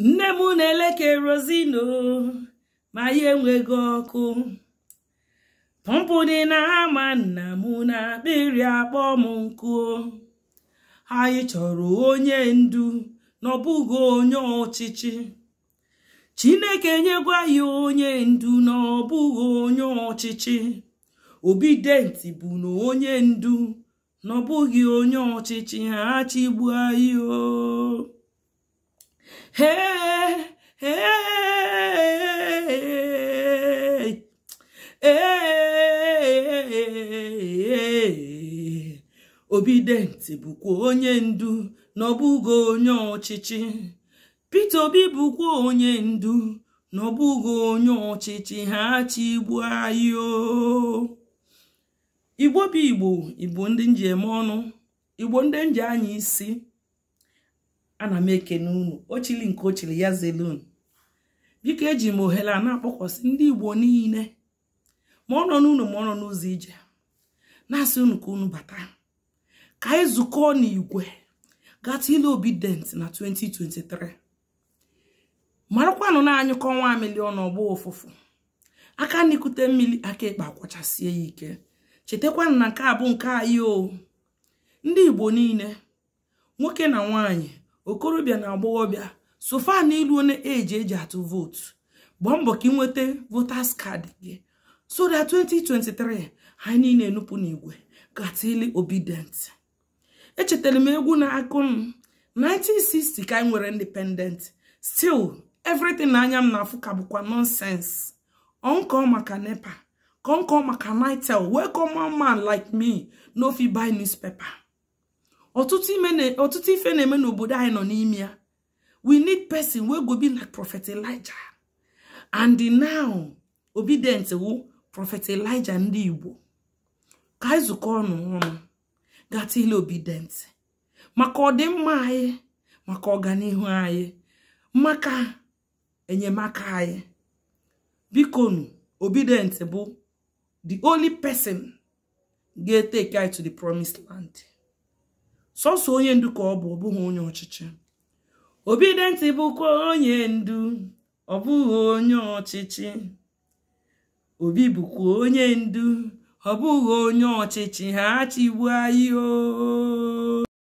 nne m na eleke rozino ma ya enweghị ọkụ pọmpụ dị na-ama nna m na akpịrị akpọ m nkụ anyị chọrọ onye ndu n'ọbụghị onye ọchịchị chineke nyegwa ya onye ndu n'ọbụghị onye ọchịchị denti bụ na onye ndu n'ọbụghị onye ọchịchị ha chigbuo anyị o ee obidenti bụkwa onye ndu na ọbụgo onye ọchịchị Peter Obi bụkwa onye ndu na ọbụgo onye ọchịchị ha chi igbu anyị igbo bụ igbo igbo ndị nji eme ọnụ igbo ndị nji anya isi ana m ekene unu ochili nke ochili ya zelun biko eji m ohere a na-akpọkwasị ndị igbo niile ma ọ nọ n'ụlọ ma ọ nọ n'ụzọ ije na-asị unu ka unu bata ka anyị zukọọ n'igwe gata ile obident na 2023 marakwanụ na-anyụkọ nwa milion ọgbọ ụfụfụ aka n'ikute mmiri aka ịkpa akwachasie ya ike chetakwanụ na nke a bụ nke anyị o ndị igbo niile nwoke na nwaanyị okorobịa na agbọghọbịa sofa na iluo eji eji atụ vootu gbaa mbọ ka ị nweta votas kaadị gị so that 2023 anyị niile enupụ n'igwe gatili obedient echetara m egwu na akụ m 1960 ka anyị nwere independent still everything na anya m na-afụ ka bụkwa nonsense ọnkọ maka nepa ka nkọ maka nitel wee kọma man like me fit buy newspaper ọtụtụ ife na-eme n'obodo anyị nọ n'ime ya we need person wey go be like prophet elijah and now obedient wụ prọfet elija ndị igbo ka anyị zukọ ọnụ ọnụ gaa obi dentị maka ọdịmma anyị maka ọganihu anyị maka enyemaka anyị bikonu obidient bụ the only person ga take anyị to the promised land sọsọ onye ndu ka ọ bụ ọbụghị onye ọchịchị bụkwa onye ndu ọ bụghị onye ọchịchị obi bụkwa onye ndu ọ bụghị onye ọchịchị ha chịgbu ayi o oh.